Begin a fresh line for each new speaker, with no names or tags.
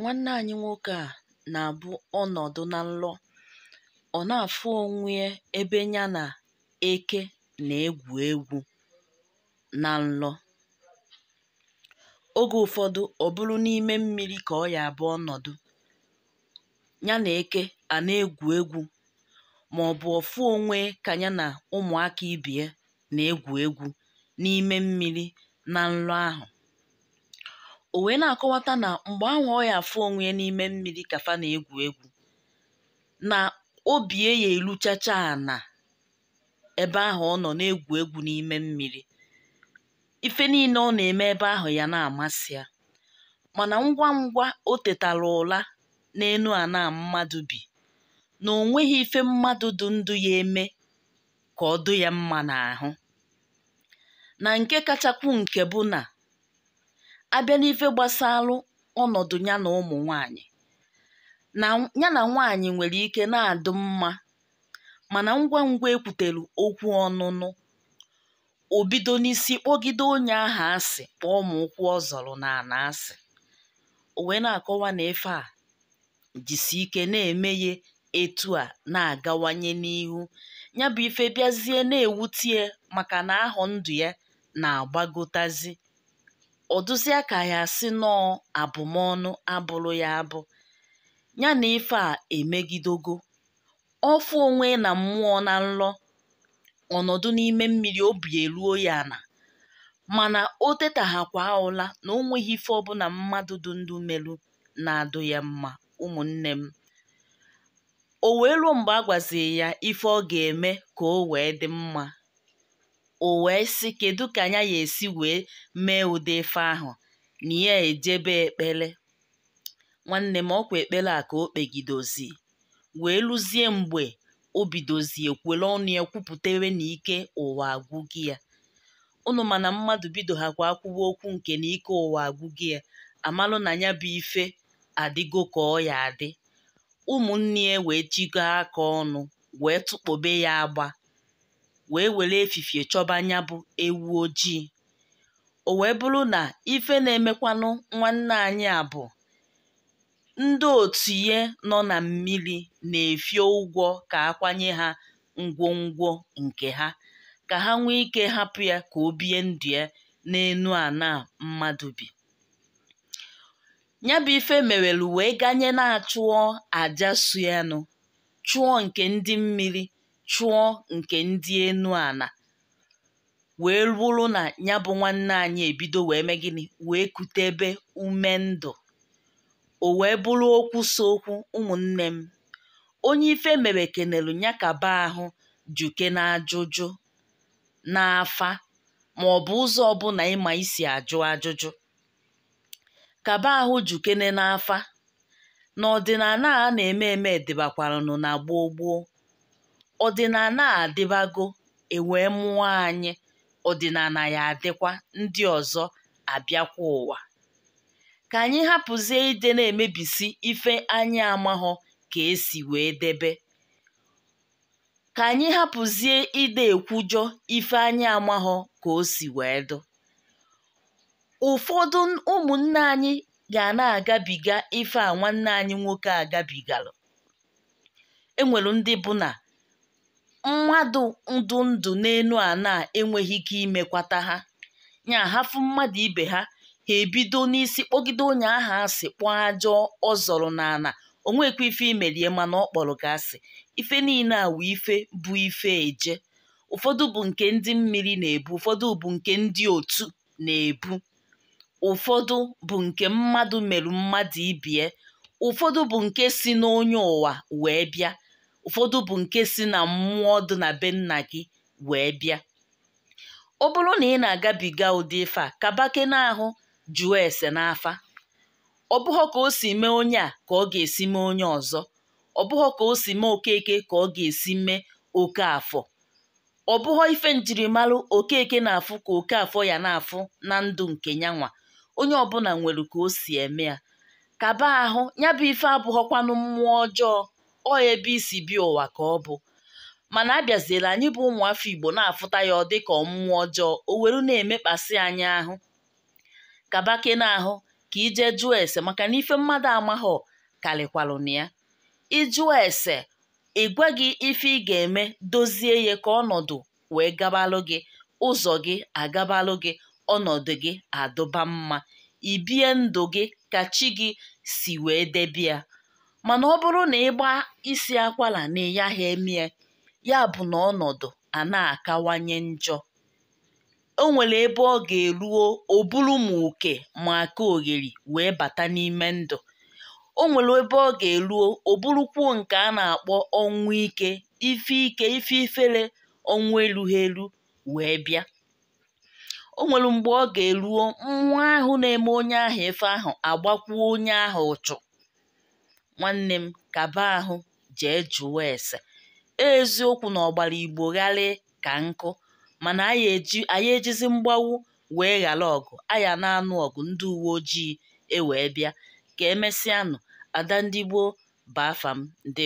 nwanne anyị nwoke a na-abụ ọnọdụ na nlọ ọ na-afụ onwe ebe ya na eke na-egwu egwu na nlọ oge ụfọdụ ọ bụrụ n'ime mmiri ka ọ ya abụ ọnọdụ ya na eke a na-egwu egwu ma ọ bụ ọfụ onwe ka ya na ụmụaka ibie na-egwu egwu n'ime mmiri na nlọ ahụ o wee na-akọwata na mgbe anwa ya afọ onwe n'ime mmiri kafa na-egwu egwu na obie ya a na ebe ahụ ọ nọ na-egwu egwu n'ime mmiri ife niile ọ na-eme ebe ahụ ya na-amasị ya mana ngwa ngwa o tetara ụra enu ana mmadụ bi na o nweghị ife mmadụ dụ ndụ ya eme ka ọ dụ ya mma n'ahụ na nke kachakwu nke bụ na abịa n'ife gbasalụ ọnọdụ ya na ụmụ nwanyị na ya na nwaanyị nwere ike na-adụ mma mana ngwa ngwa ekwutere okwu ọnụnụ o bido n'isi kpọgide onye aha asị kpọọ ma ụkwụ ọ na ana asị o wee na-akọwa na ife a jisi ike na-eme ya etu a na-agawanye n'ihu ya bụ ife bịazie na-ewutie maka na ahụ ndụ ya na-agbagotazi ọdụzịa ya si nọọ abụmọnụ abụrụ ya abụ ya na ife a emegidogo ọfụ onwe na mmụọ na nlọ ọnọdụ n'ime mmiri obi eruo ya na mana o tetaghakwa ụla na o nweghị ife ọbụla mmadụ dụ ndụ meru na-adụ ya mma ụmụnne m o wee ruo mgbe a ya ife ọ ga-eme ka o wee dị mma o wee sị kedu ka anya ya esi wee mee ụdị ife ahụ na ya ejebe ekpele nwanne m ọkwa ekpere a ka o kpegidozi wee lụzie mgbe o bidozi ekwele ọnụ ya kwupụtewe na ike ụwa agwụ gị ya ụnụ mana mmadụ bido ha kwa akwụwa okwu nke na ike ụwa agwụ gị ya amalụ na ya bụ ife adịgo ka ọ ya adị ụmụnne ya wee chigo aka ọnụ wee tụkpobe ya agba wee were efifie chọba anya bụ ewu ojii o wee bụrụ na ife na-emekwanụ nwanne anyị a bụ ndị otu ihe nọ na mmiri na-efio ụgwọ ka akwanye ha ngwongwo nke ha ka ha nwee ike hapụ ya ka o bie ndụ ya n'enu ana mmadụ bi ya bụ ife wee ganye na-achụọ aja suyanụ chụọ nke ndị mmiri chụọ nke ndị enu ana wee rụrụ na ya bụ nwanne anyị ebido wee mee gịnị wee ebe ume ndụ o wee bụrụ okwu so okwu ụmụnne m onye ife mere kenelu ya kaba ahụ juke na ajụjụ n'afa ma ọ bụ ụzọ ọbụla ịma isi ajụ ajụjụ kaba ahụ jukene n'afa n'ọdịnala a na-eme eme dịbakwaranụ na gboo gboo Ọdịna a adịbago e wee mụọ anyị ọdịnana ya adịkwa ndị ọzọ abịakwa ụwa ka anyị hapụzie ide na-emebisi ife anyị amahọ ka esi wee debe ka anyị hapụzie ide ekwujọ ife anyị amahọ ka o si wee dụ ụfọdụ ụmụnne anyị ga na-agabiga ife a nwanne anyị nwoke agabigara enwere ndị bụ na mmadụ ndụ ndụ n'enu ana enweghị ike imekwata ha nya hafu mmadụ ibe ha ha ebido n'isi kpọgide onye aha asị kpọọ ajọ ọ zọrọ n'ana onwekwa ife imerie mana ọ kpọrọ ka asị ife niile a wụ ife bụ ife eje ụfọdụ bụ nke ndị mmiri na-ebu ụfọdụ bụ nke ndị otu na-ebu ụfọdụ bụ nke mmadụ merụ mmadụ ibie ụfọdụ bụ nke si n'onye ụwa wee bịa ụfọdụ bụ nke si na mmụọ dị na be nna gị wee bịa ọ bụrụ na ị na-agabiga ụdị ife a kabake n'ahụ jụọ ese n'afa ọ bụghọ ka o si mee onye a ka ọ ga-esi mee onye ọzọ ọ bụghọ ka o si mee okeke ka ọ ga-esi mee oke afọ ọ bụghọ ife njirimara okeke na-afụ ka oke afọ ya na-afụ na ndụ nke nyanwa onye ọbụla nwere ka o si eme ya kaba ahụ ya bụ ife abụghọkwanụ mmụọ ọjọọ ọ ebe isi bịa ụwa ka ọ bụ mana abịaziela anyị bụ ụmụafọ Igbo na-afụta ya ọ dịka ọmụmụ ọjọọ o weru na-emekpasị anyị ahụ kabake n'ahụ ka ije jụọ ese maka na ife mmadụ amaghọ na ya ịjụọ ese ị gwaghị ife ị ga-eme dozie ya ka ọnọdụ wee gabalụ gị ụzọ gị agabalụ gị ọnọdụ gị adụba mma ibie ndụ gị ka chi gị si wee debia mana ọ bụrụ na ịgba isi akwara na ịyaghị emie ya bụ na ọnọdụ a na-akawanye njọ o nwere ebe ọ ga-eruo o buru m oke ma aka ogheri wee bata n'ime ndụ o nwere ebe ọ ga-eruo o burukwuo nke a na-akpọ ọnwụ ike ife ike ife ifere ọnwụ erughị elu wee bịa o nwere mgbe ọ ga-eruo nwa ahụ na-eme onye ahụ ife ahụ agbakwuo onye ahụ ụchụ nwanne m kaba ahụ jee jụọ ese eziokwu na ọgbara igbo gharịị ka nkụ mana anyị ejizi mgbawu wee ghara ọgụ aya na-anụ ọgụ ndị uwe ojii ewee bịa ka emesịanụ ada ndị gboo baafam ndị